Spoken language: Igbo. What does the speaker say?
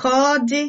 Ka ọ dị!